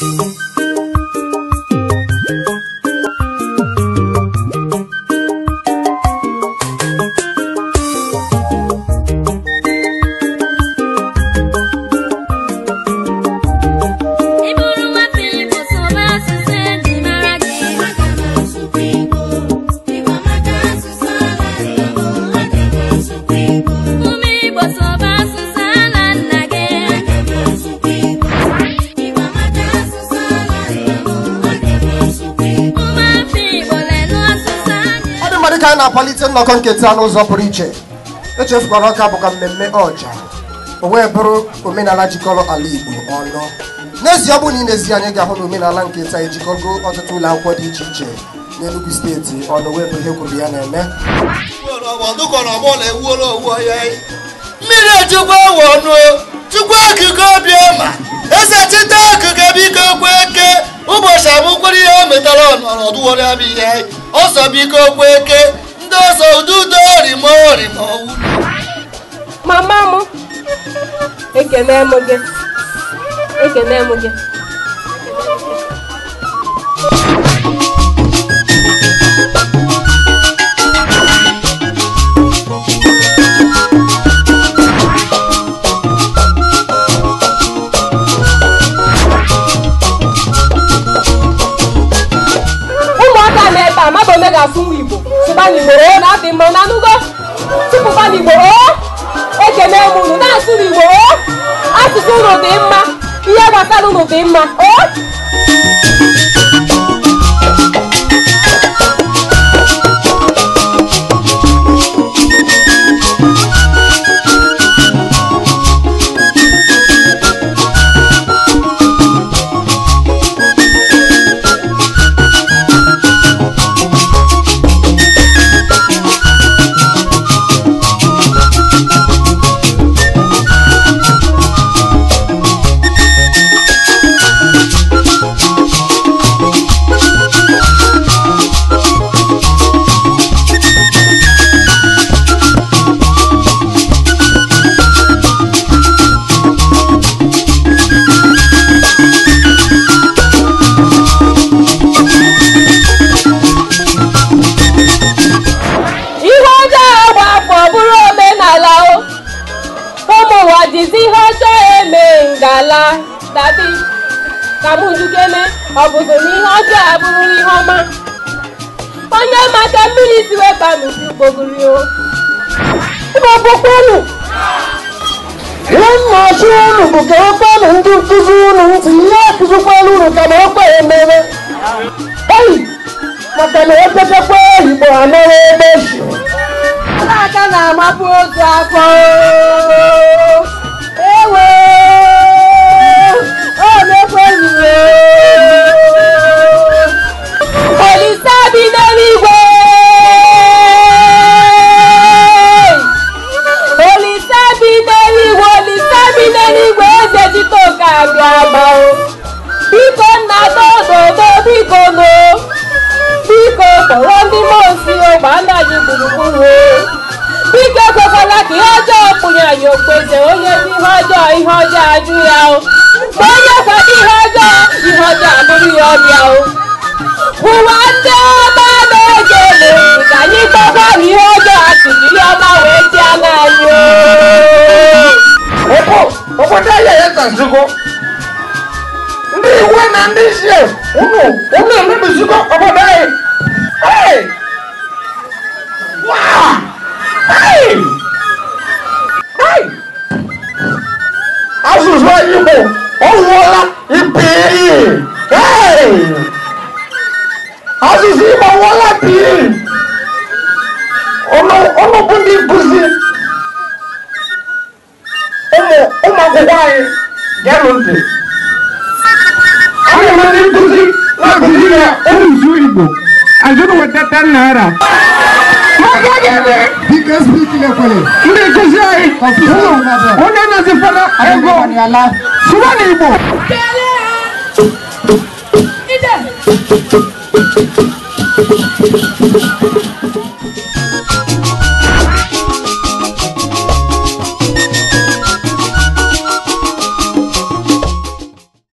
Thank you. ka a na-akwalite nnọkọ nketa n'ụzọ pụrụ iche echefukwara ọka bụkwa mmemme ọja o wee bụrụ omenala jikọrọ ala Igbo ọnụ n'ezie ọ bụ na ị ezi anyị ga-ahụ na omenala nketa ejikọgo ọtụtụ ụlọ akwụkwọ dị iche iche n'enugwu steeti ọnụ wee bụ ihe kwuru ya na-eme mmiri ejikwa wọnụ chukwu okike obiọma eze chita okike biko kweke ụbọchị abụkwara ihe metara ọnọdụ were abịa ihe ọsọ ọsọbiko eke ndị ọsọ ududo orimo orimo mama m ekene m gị ekene m gị mmadụ one ga-asụ nwa igbo sụba n'igboro na adị mma na anụgo tụpụba n'igboro ekene m unu na-asụ n'igbo asụsụ unu dị mma ihe gbasara unu dị mma o ala tàbí kàmúndúkéné ọ̀bùsùn ní ọjọ́ àbúrú ní ọmọ. onye maka mmiri siwe kpanusi gbogiri o. ịgbapụkwa unu nwannachi unu bụ ka okpenụ e ndị nkuzi unu ntị ihe akụzikwala unu ka na okpe emere eyi maka na epetakwa ehigbo anọrọ ebe ji aka na-amapụ otu afọ agaba o biko nna tododo biko no biko tọrọ ndị mosi ogbe anaghị gburugburu o biko ekwekwala ka ihe ọjọọ pụnyere anyị okpeze onye dị ihe ọjọọ ihe ọjọọ ajụ ya o onye kwa ọmọ Ìgbò ọwọlá ìbìrì asisi ma wọlá bìrì ọlọpàá ní ibùsí ọmọ ọmọ akwụkwọ anyị gẹlụ ntị ọmọ ndị nkụzi na-akụzi ya ụmụ uju Igbo azụrụ wetata naira Because speaking of Ndị nkụzi anyị, onye ego sụba na igbo Thank you.